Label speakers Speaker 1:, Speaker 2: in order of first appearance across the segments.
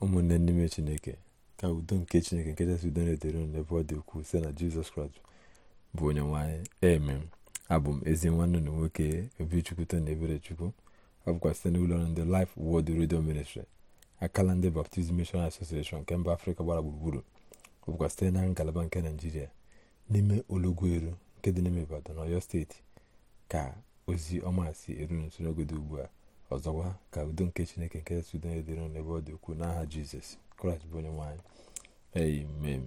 Speaker 1: ụmụnne n'ime chineke ka udo nke chineke nke chasị udo na-edere unu ebe ọ dị ukwuu site na jizọs kraịst bụ onye nwanyị emem abụ m ezi nwanne na nwoke obichukwuto na ebere chukwu ọ bụkwa site n'ụlọ ọrụ ndị Life Word Radio Ministry akala ndị Baptist Mission asosieshon nke mba afrịka gbara gburugburu ọ bụkwa site na ngalaba nke naijiria n'ime eru nke dị n'ime ibadan ọyọ steeti ka ozi ọma si eru nso n'oge ugbu a ọzọkwa ka udo nke chineke nke sudoye dịrị n'ebe ọ dị ukwuu n'aha jizọs kraịst bụ onye nwaanyị amen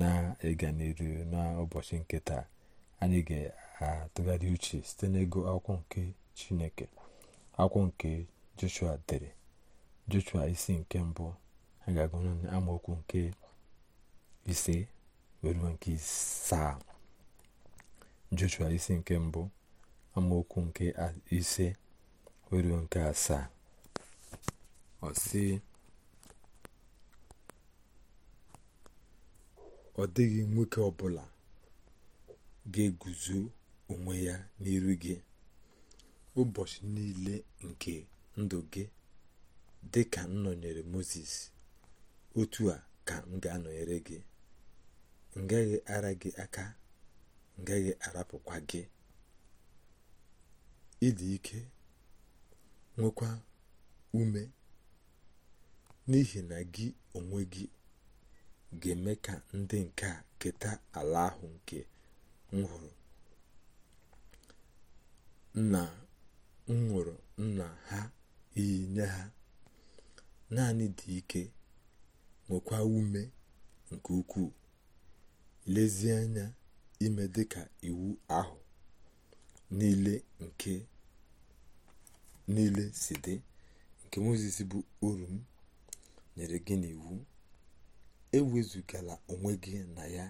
Speaker 1: na-ịga n'iru n'ụbọchị nke taa anyị ga-atụgharị uche site n'ego akwụkwọ nke chineke akwụkwọ nke joshua dere joshua isi nke mbụ a ga-agụ amaokwu nke ise nke saa joshua isi nke mbụ amaokwu nke ise ruo nke asaa ọ sị ọ dịghị nwoke ọbụla ga-eguzo onwe ya n'iru gị ụbọchị niile nke ndụ gị dị ka nnọnyere nọnyere moses otu a ka m ga-anọnyere gị ngaghị ara gị aka ngaghị arapụkwa gị ịdị ike nwekwa ume n'ihi na gị onwe gị ga-eme ka ndị nke a keta ala ahụ nke m hụrụ nna m nwụrụ nna ha iyi nye ha naanị dị ike nwekwa ume nke ukwuu lezie anya ime dịka iwu ahụ niile nke niile si dị nke mozis bụ oru m nyere gị n'iwu ewezugala onwe gị na ya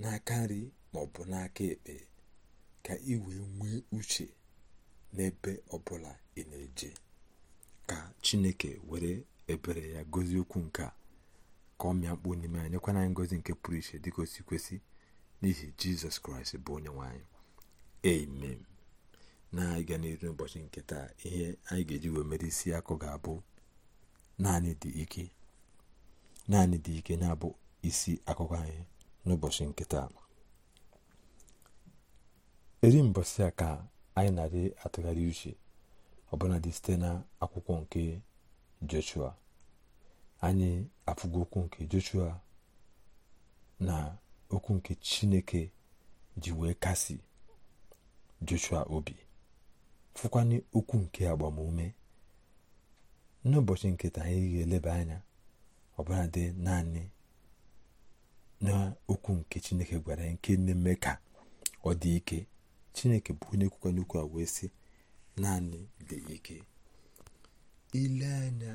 Speaker 1: n'aka nri maọbụ n'aka ekpe ka ị wee nwee uche n'ebe ọbụla ị na-eje ka chineke were ebere ya gozi okwu nke a ka ọ mịa mkpu n'ime anyị nyekwana anyị ngozi nke pụrụ iche dịka kwesị n'ihi jizọs kraịst bụ onye nwanyị na-aga n'iru n'ụbọchị nke taa ihe anyị ga-eji wee mere isi akụ ga-abụ naanị dị ike naanị dị ike na-abụ isi akụkọ anyị n'ụbọchị nke taa eri mbọsị a ka anyị na-adị atụgharị uche ọbụladị site na akwụkwọ nke joshua anyị afụgo okwu nke joshua na okwu nke chineke ji wee kasi joshua obi fụkwanye okwu nke agbamume n'ụbọchị nketa anyị ga-eleba anya ọbụla dị naanị n'okwu nke chineke gwara ya nke na-eme ka ọ dị ike chineke bụ onye kwukwanye okwu a wee sị naanị dị ike ile anya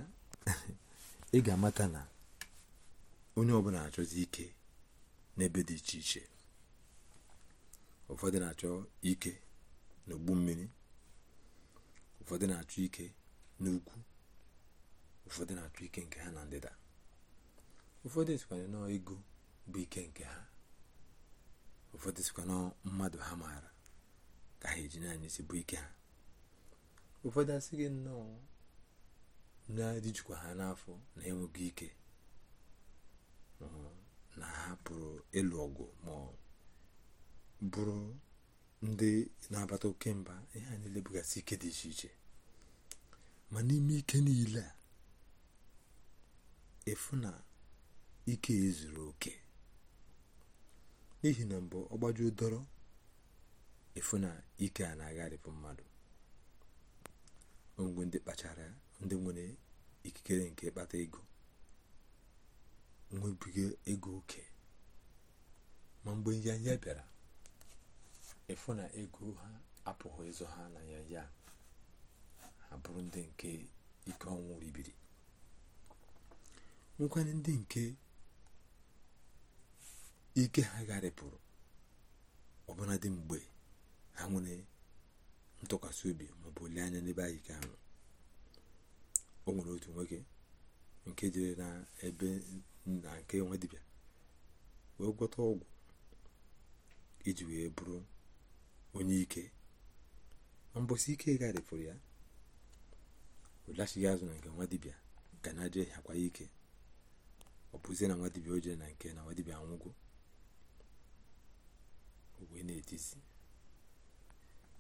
Speaker 1: ị ga-amata na onye ọbụla achọzi ike n'ebe dị iche iche ụfọdụ na-achọ ike n'ogbu mmiri ụfọdụ na-achọ ike n'ukwu ụfọdụ na-achọ ike nke ha na ndịda ụfọdụ sikwanye nọọ ego bụ ike nke ha ụfọdụ sikwa nọọ mmadụ ha maara ka ha eji naanị si bụ ike ha ụfọdụ asị gị nnọọ na-adịjikwa ha n'afọ na-enweghị ike um, na ha pụrụ ịlụ ọgụ ma bụrụ ndị na-abata oke mba ihe eh, a niile bụgasị ike dị iche iche ma n'ime ike niile a efu na ike ezuru oke n'ihi na mbụ ọgbajuo dọrọ efu na ike a na-agharịpụ mmadụ Mgbe ndị kpachara ndị nwere ikikere nke ịkpata ego nwebiga ego oke ma mgbe ya ya bịara ịfụ na ego ha apụghị ịzụ ha na ya ha bụrụ ndị nke ike ọnwụ ribiri nwekwanye ndị nke ike ha gharịpụrụ ọbụna dị mgbe ha nwere ntụkwasị obi maọbụ anya n'ebe anyị ahụ o nwere otu nwoke nke jere na ebe na nke nwe dibịa wee gwọta ọgwụ iji wee bụrụ onye ike mbosi ike gharịpụrụ ya olachighi azụ na nke nwa dibịa ka na je hakwa ike ọ bụzie na nwa dibịa o jere na nke na nwa dibịa anwụgo wee na-etizi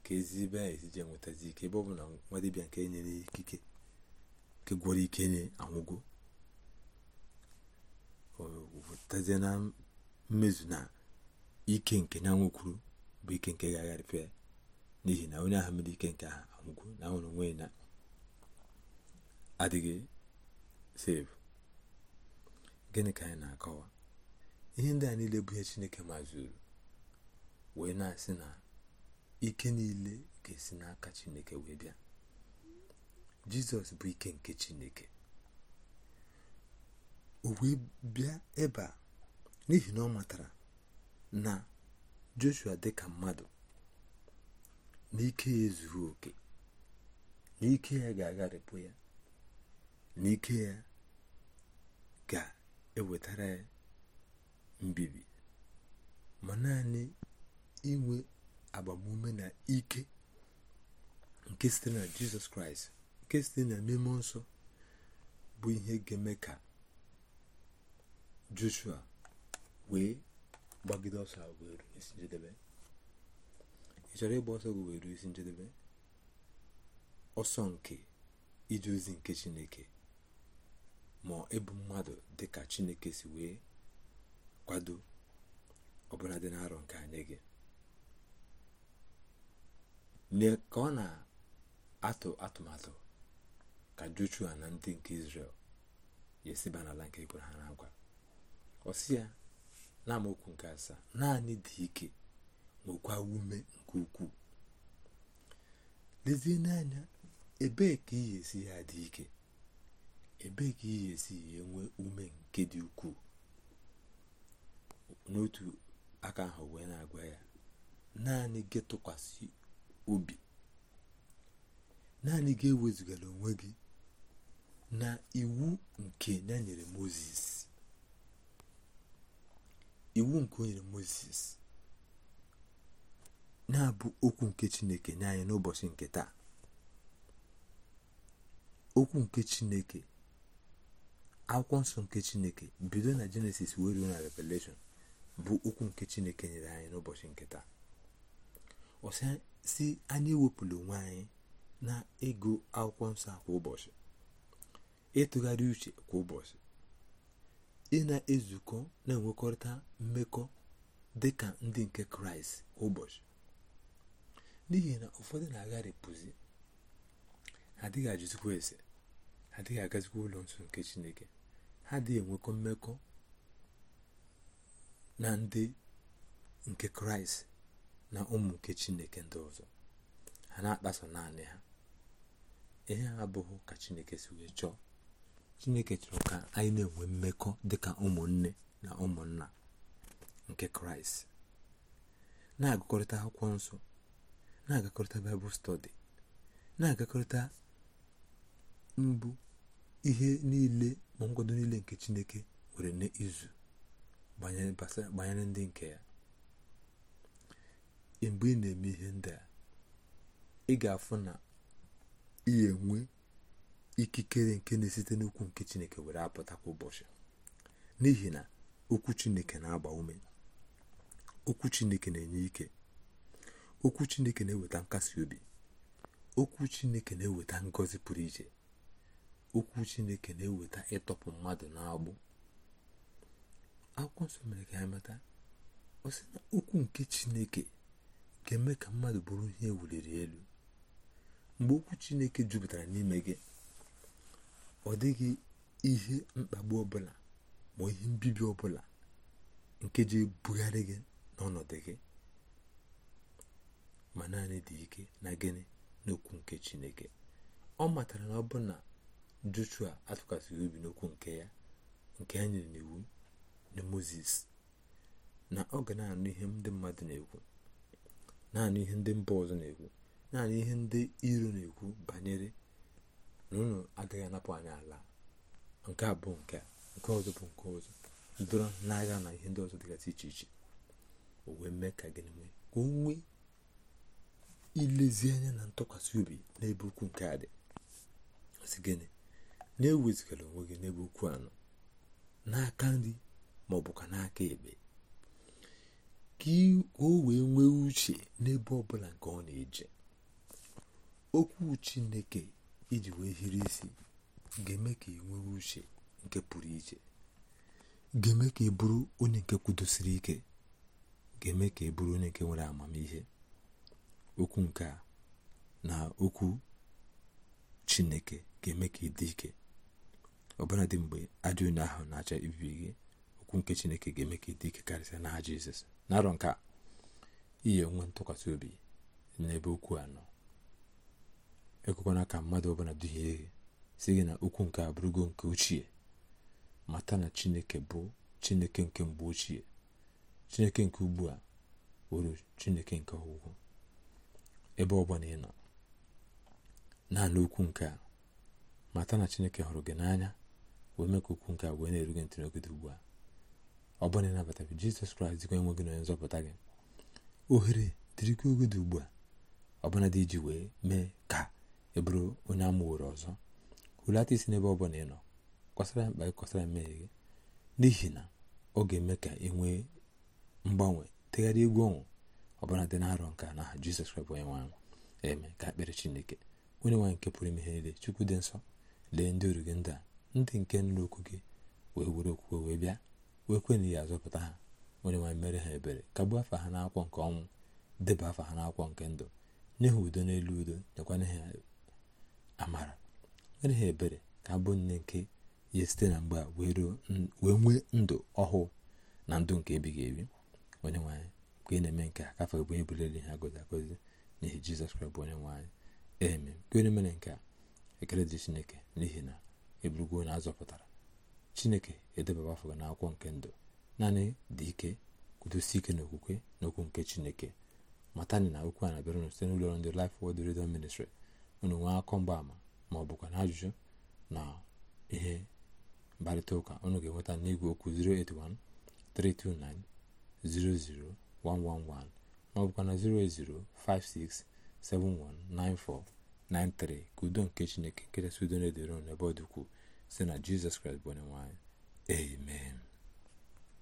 Speaker 1: ka ezi a anyị nwetazi ike ebe ọ bụ na nwa dibịa nke nyere ya ikike nke gwọrọ ike nye anwụgo o wetazie na mmezu na ike nke ya nwekwuru bụ ike nke ga-agharịfe ya n'ihi na onye ahụ mere ike nke ahụ anwụgo na nwere onwe na adịghị sevu gịnị ka anyị na-akọwa ihe ndị a niile bụ ihe chineke mazuru wee na-asị na ike niile ga-esi n'aka chineke wee bịa jizọs bụ ike nke chineke o wee bịa ebe n'ihi na ọ matara na joshua dịka mmadụ n'ike ya ezughị oke n'ike ya ga-agharịpụ ya n'ike ya ga-ewetara ya mbibi ma naanị inwe agbamume na ike nke site na jizọs kraịst nke site na n'ime nsọ bụ ihe ga-eme ka joshua wee gbagide ọsọ a isi njedebe ị chọrọ ịgba ọsọ gị isi njedebe ọsọ nke ije ozi nke chineke ma ịbụ mmadụ dịka chineke si wee kwado ọbụla dị n'arọ nke anyị gị ka ọ na-atụ atụmatụ ka joshua na ndị nke israel ya n'ala nke ekwere ha na ya na amaokwu nke asaa naanị dị ike nwekwa ume nke ukwuu lezie n'anya ebee ka ihe esi ya dị ike ebee ka ihe esi ya enwe ume nke dị ukwuu n'otu aka ahụ wee na-agwa ya naanị gị tụkwasị obi naanị gị ewezugala onwe gị na iwu nke ya nyere moses iwu nke o nyere moses na-abụ okwu nke chineke nye anyị n'ụbọchị nke taa okwu nke chineke akwụkwọ nsọ nke chineke bido na jenesis wee ruo na revelation bụ okwu nke chineke nyere anyị n'ụbọchị nke taa ọsịa si anyị ewepụla onwe anyị na ego akwụkwọ nsọ kwa ụbọchị ịtụgharị uche kwa ụbọchị ihe na-ezukọ na-enwekọrịta mmekọ dị ka ndị nke kraịst ụbọchị n'ihi na ụfọdụ na-agharịpụzi ha adịghị ajụzikwa ese ha adịghị agazikwa ụlọ nsọ nke chineke ha dịghị enwekọ mmekọ na ndị nke kraịst na ụmụ nke chineke ndị ọzọ ha na-akpaso naanị ha ihe ha abụghị ka chineke si wee chọọ chineke chọrọ ka anyị na-enwe mmekọ dịka ụmụnne na ụmụnna nke kraịst na-agakọrịta akwụkwọ nsọ na-agakọrịta baịbụl stọdi na-agakọrịta mbụ ihe niile ma nkwado niile nke chineke nwere n'izu banyere ndị nke ya mgbe ị na-eme ihe ndị a ị ga-afụ na ị enwe ikikere nke na-esite n'okwu nke chineke were apụta kwa ụbọchị n'ihi na okwu chineke na-agba ume okwu chineke na-enye ike okwu chineke na-eweta nkasi obi okwu chineke na-eweta ngọzi pụrụ iche okwu chineke na-eweta ịtọpụ mmadụ n'agbụ akwụkwọ nsọ mere ka ya ọ na okwu nke chineke ga-eme ka mmadụ bụrụ ihe ewuliri elu mgbe okwu chineke jupụtara n'ime gị ọ dịghị ihe mkpagbu ọbụla ma ihe mbibi ọbụla nke ji ebugharị gị n'ọnọdụ gị ma naanị dị ike na gịnị n'okwu nke chineke ọ matara na ọ bụ na joshua atụkwasịghị obi n'okwu nke ya nke ya nyere n'iwu na moses na ọ ga na-anụ ihe ndị mmadụ na-ekwu naanị ihe ndị mba ọzọ na-ekwu naanị ihe ndị iro na-ekwu banyere na unu agaghị anapụ anyị ala nke a bụ nke nke ọzọ bụ nke ọzọ dọrọ n'agha na ihe ndị ọzọ dịgasị iche iche o wee mee ka gịnị mee ka o nwee ilezi anya na ntụkwasị obi n'ebe ukwu nke a dị si gịnị na-ewezigara onwe gị n'ebe ukwu anọ n'aka nri ma ọ bụ ka n'aka ekpe ka o wee nwee uche n'ebe ọbụla nke ọ na-eje okwu chineke iji wee hiri isi ga-eme ka ị nwere uche nke pụrụ iche ga-eme ka ị bụrụ onye nke kwudosiri ike ga-eme ka ị bụrụ onye nke nwere amamihe okwu nke na okwu chineke ga-eme ka ị dị ike ọbụla dị mgbe ajọ onye ahụ na acha ibibi gị okwu nke chineke ga-eme ka ị dị ike karịsịa n'aha jizọs narọ nke a iyi onwe ntụkwasị obi n'ebe okwu a nọ ekwekwana ka mmadụ ọbụla duhie gị si gị na okwu nke abụrụgo nke ochie mata na chineke bụ chineke nke mgbe ochie chineke nke ugbu a wụrụ chineke nke ọgwụgwụ ebe ọbụla ị nọ naanị okwu nke a mata na chineke hụrụ gị n'anya wee mee ka okwu nke a wee na-eru gị ntị n'ogide ugbu a ọ bụla ịnabata gị jizọs kraịst dịkwa enwe gị na onye nzọpụta gị ohere dịrịkwa ogede ugbu a ọbụla dị iji wee mee ka ị bụrụ onye amụworo ọzọ hulata isi n'ebe ọ bụla ị nọ kọsara mkpa gị kọsara mmehie gị n'ihi na ọ ga-eme ka ị nwee mgbanwe tegharị egwu ọnwụ ọbụla dị na-arọ nke a n'aha jizọs kraịst onye nwaanyị eme ka akpịrị chineke onye nwaanyị nke pụrụ ime ihe niile chukwu dị nsọ lee ndị oru gị ndị a ndị nke nụrụ okwu gị wee were okwukwe wee bịa wee kwena ya azọpụta ha onye nwaanyị mere ha ebere kagbuo afa ha n'akwụkwọ nke ọnwụ deba afa ha n'akwụkwọ nke ndụ nye ha udo n'elu udo nyekwana ha amara mere ha ebere ka abụ nne nke ya site na mgbe a wee nwee ndụ ọhụụ na ndụ nke ebighị ebi onye nwanyị ka ị na-eme nke a kafe bụ onye buliri ha gozi agozi n'ihi jizọs kraịst bụ onye nwanyị eme kwere mere nke a ekele dị chineke n'ihi na eburugo na azọpụtara chineke edebaba afọ gị n'akwụkwọ nke ndụ naanị dị ike kwudosi ike n'okwukwe n'okwu nke chineke matani na okwu a na-abịara site n'ụlọ ọrụ ndị Life Word Radio Ministry unu nwee akọ mgbaama ma ọ bụkwa na ajụjụ na ihe mkparịta ụka unu ga-enweta n'igwe okwu 081 329 00111 ma ọ bụkwa na 08056 ka udo nke chineke nkechasị udo na-edoro n'ebe ọ dịkwu si na jizọs kraịst bụ onye amen